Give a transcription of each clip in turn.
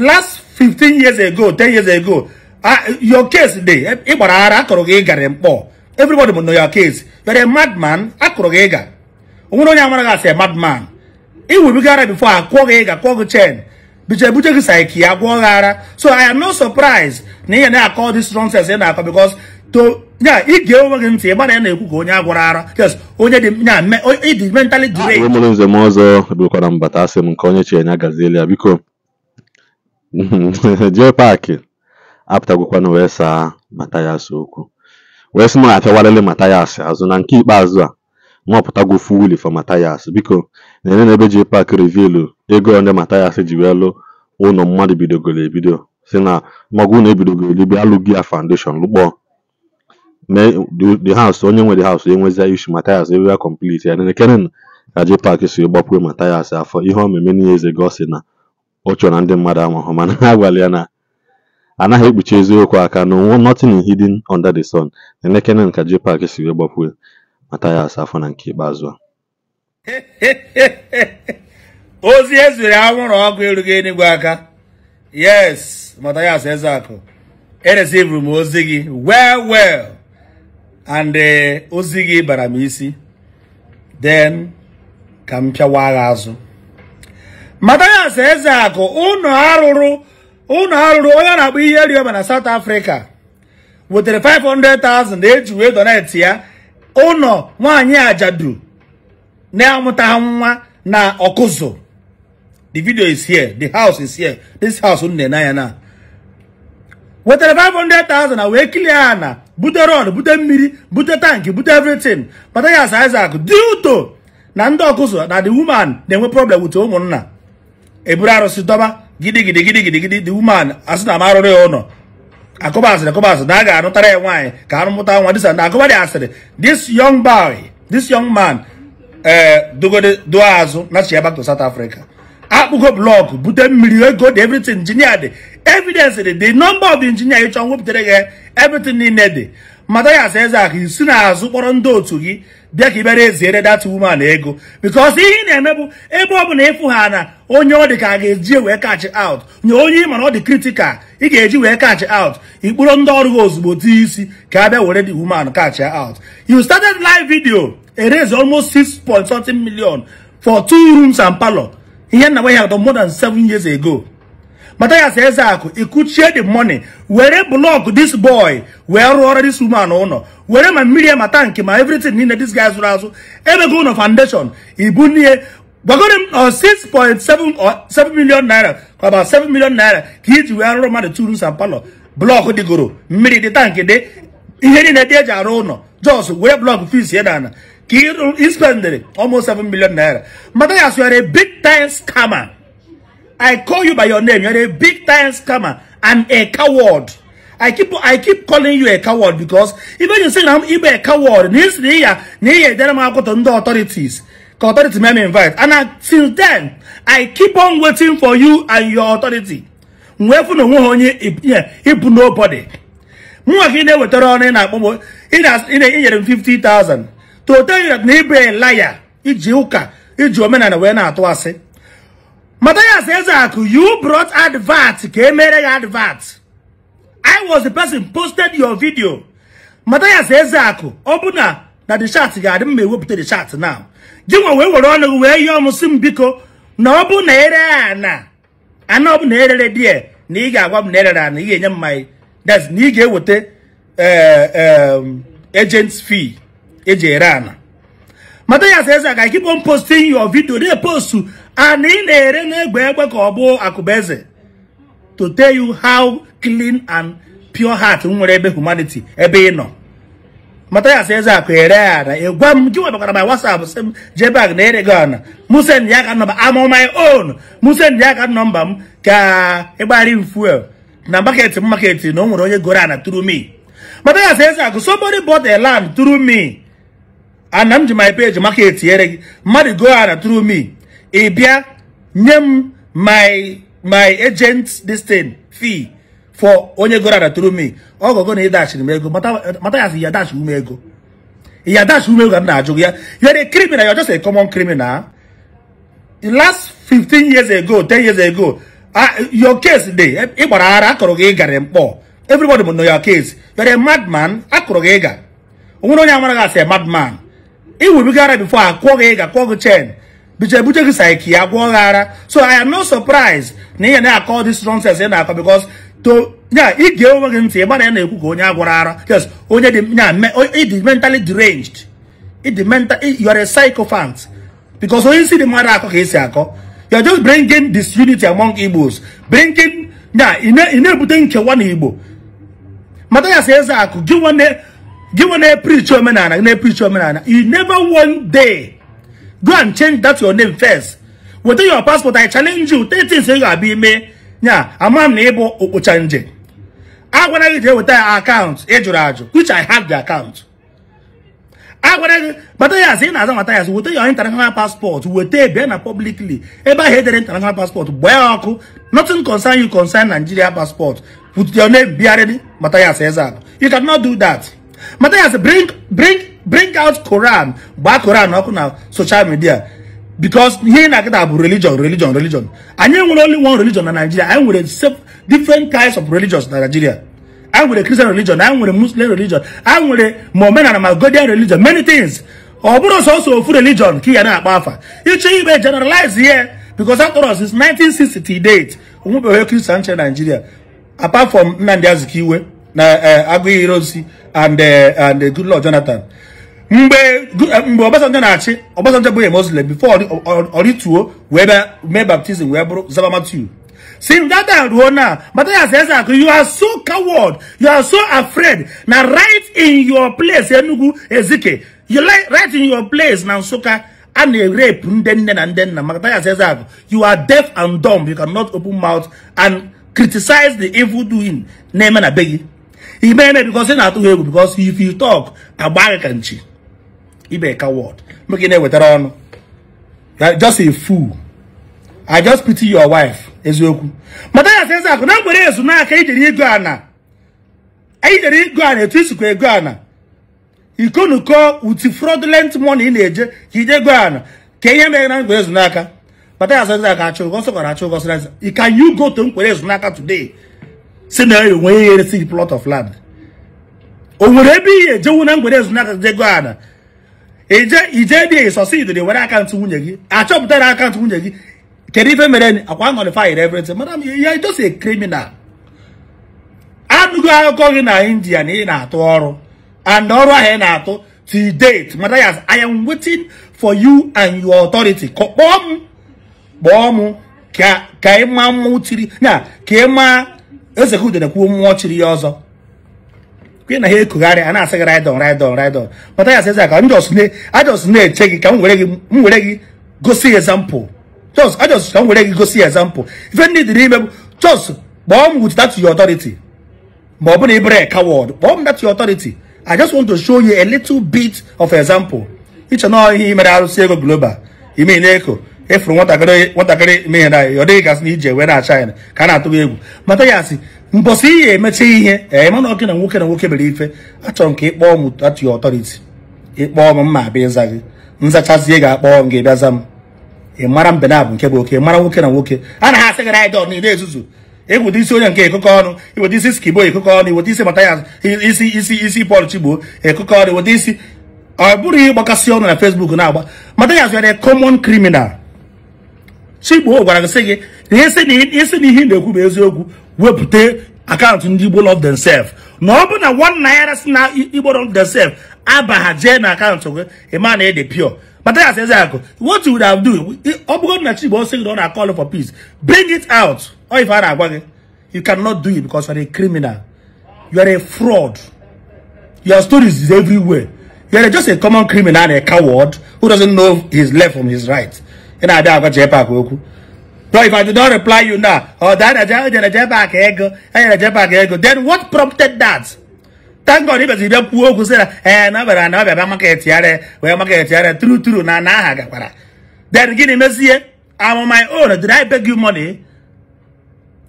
last 15 years ago 10 years ago your case dey ị gbara ara akọrọ gị ịgarị mkpọ everybody know your case you're a madman akọrọ gị ịga onye amara gị asị madman ị webiga ara bifo a kwụọ gị ịga gị chen biche buche gị ya gị ara so i am not surprised na ihe na-akọ this nonsense na-akọ because to ya ige onwe gị ntị ịgbara ya na-ekwu ka onye agwara onye dị mentally m nze m ọzọ mbata asị m nke onye biko jee paakị apụtagokwana wee saa Matayas okwu wee sị m na Matayas azụ na nke ikpeazụ a nwapụtago fuwili for Matayas biko na-enye na ebe jee paakị rivilu ego onye Matayas ji wee lụ ụlọ mmadụ bidogoro ebido si na magụ na ebidogoro elibe alụghị ya foundation lụkpọ the house onye nwe the haus enwezia isu Matayas ebe ya complete ya nene kenen ka jee paakị si gbapue Matayas afọ ihe omeme niile eze gị ọ na ọ chọrọ na ndị mmadụ amahụ mana ha gwara ya na anaghị ekpuchi eziokwu aka na onwe nothing hidden under the sun elekere nka JPAC si wee gbapue mata ya asa afọ na nke ikpeazụ a ozi ezuru anwụrụ ọkụ erughị enigwe aka yes matayas ezeakụ eresivuru m ozi gị well well and eh, ozi gị bara m isi then ka m pịawa agha azụ Mathias Ezeaku ụnọ arụrụ ụnọ arụrụ onye na-akpọ ihe rioma na South Africa wetere 500,000 eji wee donate ya ụnọ nwanyị ajadu na-amụtaghị nwa na ọkụzụ the video is here the house is here this house nne na ya na wetere 500,000 na wee kilie ya na bute rod bute mmiri bute tankị bute everything Mathias Ezeaku due to na ndị ọkụzụ na the woman na-enwe problem with ụmụnna eburu arụsị dọba gidigidi gidigidi the woman asị na m ụlọ akụba asịrị akụba asịrị na a ga-anụtara ya nwaanyị ka mụta nwa disa na akụba dị asịrị this young boy this young man ee eh, dogode azụ na chia back to South Africa akpụgo blọkụ bute mmiri ego dị everything injinia dị evidence dị the number of injinia ịchọ nwepụtara gị everything niile dị mata ya asa eze ahụ isi n'azụ kpọrọ ndị otu gị bịa ka ịbịara eziere dat woman ego because ihe ị na-eme bụ ebe ọ bụ na ịfụ ha na onye ọ dị ka a ga-eji e wee kachi out nye onye ị mana ọ dị critical ị ga-eji wee kachi out ikpụrụ ndị ọrụ ha ozugbo dị isi ka a bịa were woman catch out you started live video e raise almost 6 point something million for two rooms and palo ihe nna nwe ya more than seven years ago Mathias Ezeaku ikuchie di money were block this boy wee rụọrọ this woman ụlọ were ma mmiri ya ma tankị everything niile this guy zụrụ azụ go ụlọ foundation ibunie gwagoro m 6.7 or 7 million naira about 7 million naira ka iji wee rụrụ mmadụ turu san palo blọk mmiri di tank de ihe niile e ji arụ ụlọ jos were blọk fis ya ka spend almost 7 million naira Mathias were big time scammer I call you by your name. You're a big time scammer and a coward. I keep I keep calling you a coward because even you say I'm even a coward. This year, near then I'm going to go to the authorities. The authority may invite. And I, since then, I keep on waiting for you and your authority. Wherever no one you. if nobody. Mwa ki ne wetara on in a bomo in a in a year and fifty thousand. To tell you that neighbor a liar, it's Juka, it's your man and a winner at Matthias advat you brought advert. Came advert. I was the person posted your video. Matthias Ezak, open up. That the chat guy didn't make up to the chat now. Give away what on the way you almost biko na no open air na. I know na air agwa na wab nera na iye nyam mmai That's niga wote uh, eh, um, agent's fee. Eje ana. I keep on posting your video. They post and ị na-ere n'egbe ka ọ bụ akụbeze to tell you how clean and pure heart nwere ebe humanity ebe ino. nọ mata ya sị eze ara ị gwa m gị webakara my whatsapp sị m jebag na ere gị ọna musen ya ka nọmba am on my own musen ya ka nọmba m ka ịgbari fuel na market m market na o nwere onye goro na through me mata ya sị eze akụ somebody bought a land through me ana m ji my page market ere gị mmadụ go ana through me ị bịa nye my my agent this thing fee for onye goro that tụrụ me ọgọgọ na ịdachiri m ego mata ya si ya dachi me ego ya dachi me ego na-ajụ ya you are a criminal you are just a common criminal last 15 years ago 10 years ago your case dey ị gbara ara akọrọ gị ịgarị mkpọ everybody know your case you are a madman akọrọ gị ịga onwere onye amara gị a madman ị wụbiga ara before akwụọ gị ịga kwụọ gị chen biche buche gị saiki ya gwọọ gị ara so i am no surprised na ihe na-akọ this nonsense ị na-akọ because to ya ige onwe gị ntị ịgbana ya na-ekwu ka onye agwọrọ ara yes onye dị ya ịdị mentally deranged ịdị mental you are a psychophant because onye isi dị mmadụ akọ ka esi akọ you are just bringing disunity among Igbos bringing ya ị na-ebute nkewa na Igbo mata ya si eze akụ gị nwa na-eprichi omenala gị na-eprichi omenala you never one day go and change that your name first weta your passport i challenge you take things ị ga-abịa ime nya ama m na ịbụ okpocha nje agwara gị jee weta ya akaụntụ ịjụrụ eh, ajụ which i have the account agwara gị kpata ya ị na-aza nwata ya your weta international passport weta bịa na publicly ebe ahụ edere international passport gbaa ya ọkụ nothing concern you concern Nigeria passport put your name bịarịrị Matthias Ezeaku you cannot do that Matthias bring bring take out Quran gbaa Quran ọkụ na social media because ihe ị na-akịta bụ religion religion religion anyị nwere only one religion na Nigeria anyị nwere different kinds of religions na Nigeria anyị nwere Christian religion anyị nwere Muslim religion anyị nwere ma omenala ma Godian religion many things ọ bụrụ sọsọ ofu religion ka ị ya na-akpa afa ịchọ Ibe generalize here because after all is 1960 date onwebeghị Christian church Nigeria apart from Nnamdi Azikiwe na eh, Aguiyi Ironsi and eh, and eh, Goodluck Jonathan mgbe eh, mgbe Obasanjo na-achị Obasanjo bụghị Muslim before orituo wee bịa mee baptizim wee bụrụ zabamatu. matiu since ruo na Mathias akụ you are so coward you are so afraid na right in your place Enugu Ezike you like right in your place na Nsụka a na-erepu ndị nne na ndị nna you are deaf and dumb you cannot open mouth and criticize the evil doing na-eme na be gị ime eme because ị na atụghị egwu because if you talk agba ka nchi ibe word make na-ewetara ọnụ just a fool i just pity your wife eziokwu mata ya sị na mgbere ezu n'aka ijere ana e, ijere a ana etu isikwa ego ana ikonuko uti fraudulent money na-eje ka ije go ana ka ihe mere na mgbere ezu n'aka mata ya sị ezakụ achụ can you go to mgbere today si na enweghị ihe plot of land o nwere ebe ihe ejewu na mgbere ezu n'aka ije e succeed were akaụntụ nwunye gị achọpụtara akaụntụ nwunye gị kedu ife mere akwa nọlifayir everything madam ya just a criminal anụgo akụkọ gị na india na ị na-atụ ọrụ and ọrụ ahụ ị na-atụ to date mata ya i am waiting for you and your authority kpọọ m ka ị na ka ị ezekudere kwuo mmụọ chiri ya ọzọ gị na ha ekugharị a na-asị gị raidon raidon raidon mata ya sịza ka ajọs na-eche gị ka m were gị gosi ezampụ jos ajọs ka m were gị gosi ezampụ ife ndị dị n'ime bụ jos kpọọ m with that your authority ma ọ bụ na ibere ka wọd kpọọ m that your authority i just want to show you a little bit of example ịchọ na ihe mere arụsị ego global ime na eko efuru nwatakịrị nwatakịrị eme ihe na ọ dịghị gasị na ije wee na-acha ka a na-atụ egwu mata ya asị mbọsị ihe emecha ihe ee mana ọkị na nwoke na nwoke mere ife achọrọ nke ka ị kpọọ m atụ ya ọtọriti ịkpọọ m mma abịa ịza gị nzachazie ga-akpọọ m gị bịaza m ị mara mbe na abụ nke bụ oke mara nwoke na nwoke a na ha asị gị raịdọn niile ezuzu eweta isi onye nke ekụkọ ọnụ iweta isi skibo ekụkọ ọnụ iweta isi matayas isi isi isi pọl chigbo ekụkọ ọnụ iweta isi ọ bụrụ ihe ịgbakasị ọnụ na fesbuk na-agba matayas were common criminal Chigbo gwara sị gị isi na ihe na-ekwu bụ eziokwu wepụta akaụntụ ndị Igbo love themselves na ọ bụ na one naira si na Igbo love themselves abaghajee na akaụntụ gị ịma na ede pure but that's exactly what you would have done ọ bụrụ na Chigbo sị gị ọ na-call for peace bring it out ọ ife a na-agwa gị you cannot do it because you are a criminal you are a fraud your stories is everywhere you are just a common criminal and a coward who doesn't know his left from his right ị na-abịa agwa JPAC okwu so if I do not reply you now, or that I did a jetpack ego, I did a ego, then what prompted that? Thank God, if you poor okwu say na no, but na know about market yare, where market true, true, na na gakwara. Then gịnị mezie am on my own. Did I beg you money?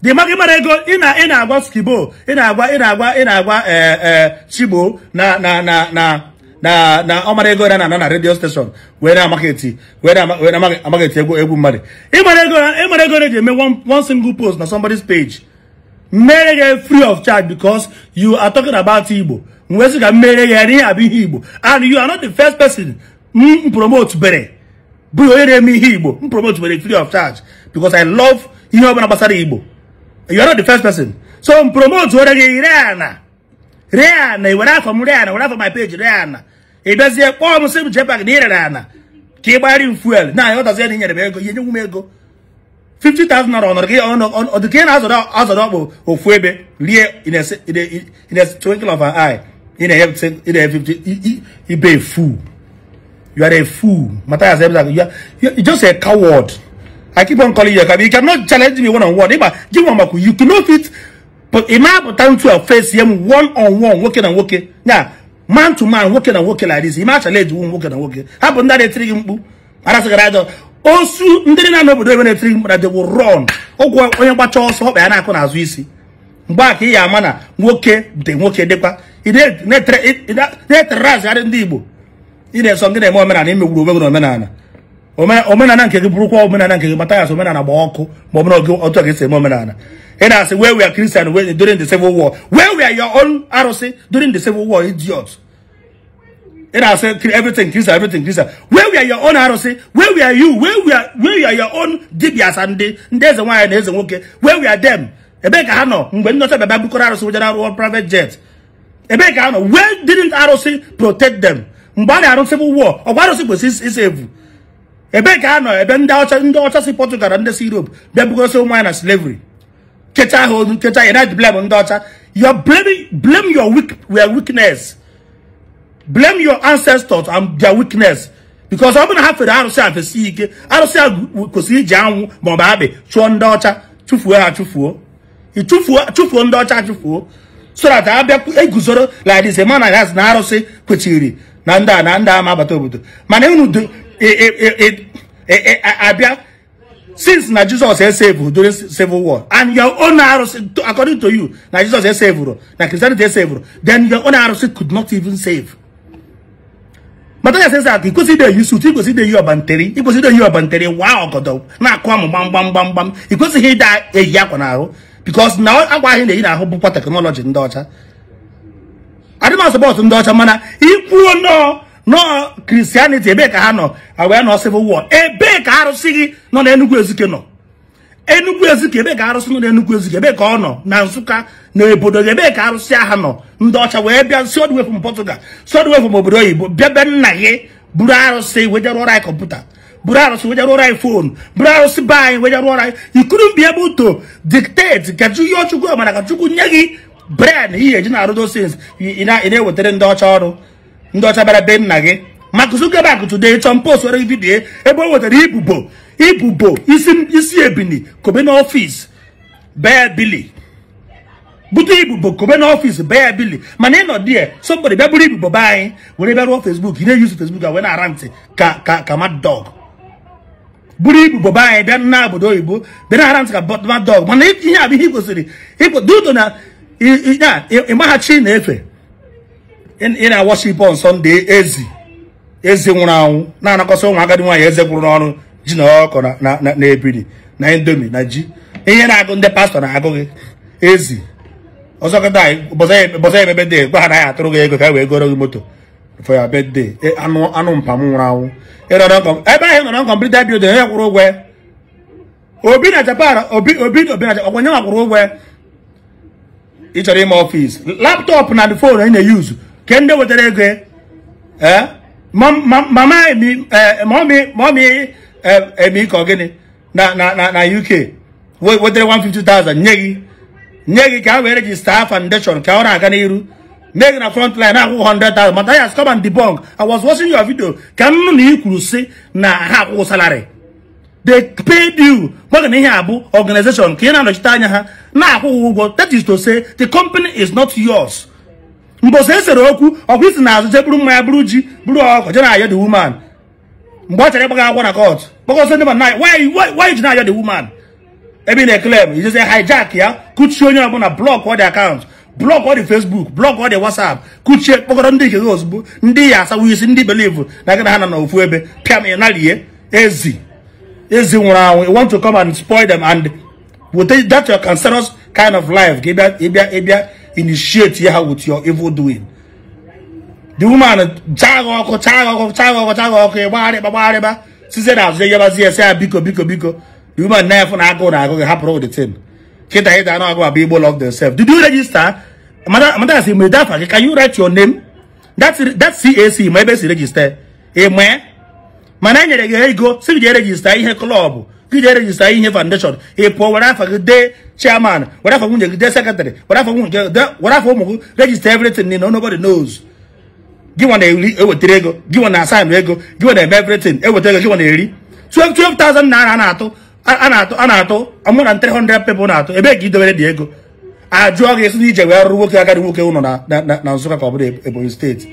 The market money ego ị na-ị na-agwa skibo, agwa a in a in a eh eh chibo na na na na. na na ọmara ego na na redio steshọn wee na market wee na-amaketi egwu egwu mmadụ ịmara ego eji eme one single post na somebody's page mmere ya free of charge because you are talking about igbo wee sị ka mmere ya abụ igbo and you are not the first person m promote bere bụ onye na-eme igbo m promote bere free of charge because i love ihe ọbụla gbasara igbo you are not the first person so m promote ore gị ree ana ree ana were afọ m ree ana were afọ my page ree ị bịazie kpọọ m sị m na ị ana ka ị gbara m fuel na na inyere m ego ihe nyenwu m ego 50,000 naira ọnọdụ gị ọdụ ka ị na-azọrọ ọkpụ ofu ebe rie in a twinkle of an eye ị na-enye ibe fu you are a fool mata ya sebza you just a coward i keep on calling you a coward you cannot challenge me one on one ịgba gị nwa makwụ you cannot fit but ị na-apụta ntụ a face ya one one nwoke na nwoke man to nwoke na nwoke like this ime achala ejiwu nwoke na nwoke ha bụ ndị na-etiri gị mkpu arasịgara aja osu ndị na-anọ obodo ebe na-etiri gị mkpu na dewo rọn ụgwọ onye gbacha ọsọ ọkpa ya na-akụ n'azụ isi mgbe a ka ị ya ama na nwoke dị nwoke dịkwa ị na-etere azịgharị ndị Igbo ị na-eso gị na-eme omenala imegburu onwe gị na omenala omenala nke gị bụrụkwa omenala nke gị mata omenala gba ọkụ ma ọ bụrụ otu esi eme omenala And I say, where we are Christian during the Civil War. Where we are your own ROC during the Civil War, idiots. And I say, everything Christian, everything Christian. Where we are your own ROC, where we are you, where we are, where we are your own Dibias and there's a one and there's a okay. Where we are them. Ebeka Hano, when not a Babu Koraros with our private jet. Ebeka Hano, where didn't ROC protect them? Mbani Aron Civil War, or why ROC was his evil? Ebeka Hano, Eben Daucha, Daucha, Portugal, and the Europe, Babu Koraros, wine and slavery. nketa ahụ olu nketa you're not blame ndị ọcha you're blaming blame your weak your weakness blame your ancestors and their weakness because ọ bụrụ na ha fere arụsị a fesi ike arụsị a kwesịrị ji anwụ ma ọ bụ abị chụọ ndị ọcha chụfuo ha chụfuo chụfuo ndị ọcha chụfuo so that abịa guzoro like this man has na arụsị kwechiri na ndị a na ndị a agbata obodo mana unu abịa since na jesus esevuru during civil war and your own arụsị according to you na jesus esevuru na christianity esevuru then your own arụsị could not even save matanya says that ikwesị ide yi sut ikwesị ide yi ọbanteri ikwesị ide yi ọbanteri wa ọgọdọ na-akụ amụ gbamgbam gbamgbam ikwesịghị ide eyi akwa n'ahụ because na akwa ahụ na-eyi n'ahụ bụkwa teknọlọji ndị ọcha adịmasị bọọsụ ndị ọcha mana ikwuo nọọ nọọ christianity ebee ka ha nọ wee nọ civil war ebee ka arụsị gị nọ na enugwu ezike nọ enugwu ezike ebe ka arụsị nọ na enugu ezike ebe ka ọ nọ na nsụka na obodo ebee ka arụsị aha nọ ndị ọcha wee bịa si odwe from Portugal si odwe from obodo oyibo bịa be nna gị buru arụsị wee jeruo anyị kọmputa buru arụsị wee jeruo anyị fonu buru arụsị be anyị wee jeruo anyị ikuru be ebe uto dictate ka ihe ọchukwu ọmara ka chukwu nye gị bred ihe eji ị na-ewetara ndị ọcha ọrụ ndị ọcha bara be nna gị maka Mark Zuckerberg today Tom post were vidiyo ebe o nwetara ibubo ibubo isi ebili kobe n'ọfịs bee bili bute ibubo kobe n'ọfịs bee bili mana ị nọ die somebody bịa bụrụ ibubo be anyị were bịa rụọ Facebook ị na-eyuzu fesbuk a wee na-ara ntị ka ka ka mad buru ibubo be anyị bịa na obodo oyibo bịa na-ara ntị ka mad dog mana ihe a bụ ihe ị kwesịrị ịgbahachi na-efe ị na-awaship on Sunday ezi ezi nwụrụ anwụ na-anakọsa ụmụ agadi nwaanyị eze gwụrụ n'ọrụ ji na ọkụ na ebiri na indomi na ji ihe na-agụ ndị pastọ na-agụ gị ezi ọzọkọta ya bebe de gwa ha naghị atụrụ gị ego ka wee goro gị moto for your birthday e, anụ mpa m nwụrụ anwụ ebe ahụ nọrọ nkọmplita bildin onye kwụrụ ụgwọ obi na japan obi obi obi na ọkwa nye nwa kwụrụ ụgwọ ị chọrọ ime ọfịs laptọpụ na fon ị na-eyuzu ke ndị wetara ego maọmị eme ka gịnị na uk wetara 150,000 nye gị nye gị ka a wee rejista foundation ka ọ na-aga n'iru mee na front line akwụkwọ 100,000 mata ya come and debunk I was watching your video ka m na ị kwuru si na ha akwụkwọ salary they paid you maka na ihe a bụ organization ka ị na-anọchite anya ha na-akwụghị ụgwọ that is to say the company is not yours mbosi esere okwu ọkwa isi na azụ jeburu mmanya bụrụ ji bụrụ ọkụ je na-ayọ the woman mgbe ọ chọrọ ịgbaga agwọ na kọt kpọkọsọ ndị mana why ji na-ayọ the woman ebe ị na-eklem ijezi hijack ya kuchie onye ọbụla blọk ọ dị akaụntụ blọk ọ dị fesbuk blọk ọ dị wasap kuchie kpọkọrọ ndị nke gị ozugbo ndị ya asawo isi ndị belivu na gị na ha nọ n'ofu ebe pịam ị nalie ezi ezi nwụrụ anwụ i want to come and spoil them and will take that your cancerous kind of life ka ịbịa ịbịa ịbịa initiate ya with your evil doing the woman ọkụ chaga ọkụ chaga ọkụ azụ ya biko biko biko the woman na efu na agụụ na gị hapụrụ the tin kịta ị dana agụ abụ igbo love themselves did you register can you write your name cac ma ebe si register mana e nyere gị ego si gị ihe ihe foundation ị pụọ were chairman, whatever we get secretary, whatever we get whatever we register everything, you know, nobody knows. Give one a ewetara ego, give one assign ego, give one everything, ewetara ego, give one eri. 12 12,000 naira na-atụ a na-atụ a na-atụ amụ na 300 people na-atụ ebe ka idobere dị ego ajụọ gị esi na ije wee rụrụ nwoke agadi nwoke ụnọ na Nsụka ka ọ bụrụ Ebonyi steeti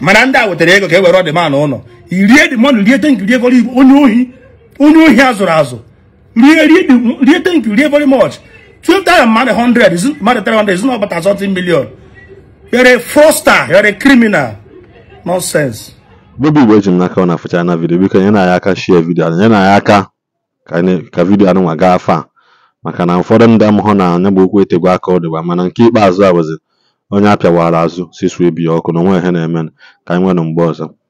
mana ndị a wetara ego ka e were ọdịmana ụlọ irie dịmọnụ rie tenk ego goro igbo onye ohi onye ohi a zụrụ rie rie rie thank you rie very much 12 times mmadụ 100 is mmadụ 300 is not about something million you're a fraudster you're a criminal nonsense bobi igbo eji m n'aka ọ na-afụcha na vidio biko nye na ya aka shie vidio nye na aka ka vidio anụnwa gaa afọ maka na ụfọdụ ndị amụhụ na anya bụ okwu etegwu aka ọ dịgba mana nke ikpeazụ a bụzi onye apịawara azụ si sue bi ya ọkụ na onwe ihe na-eme ka anyị nwere mgbe ọzọ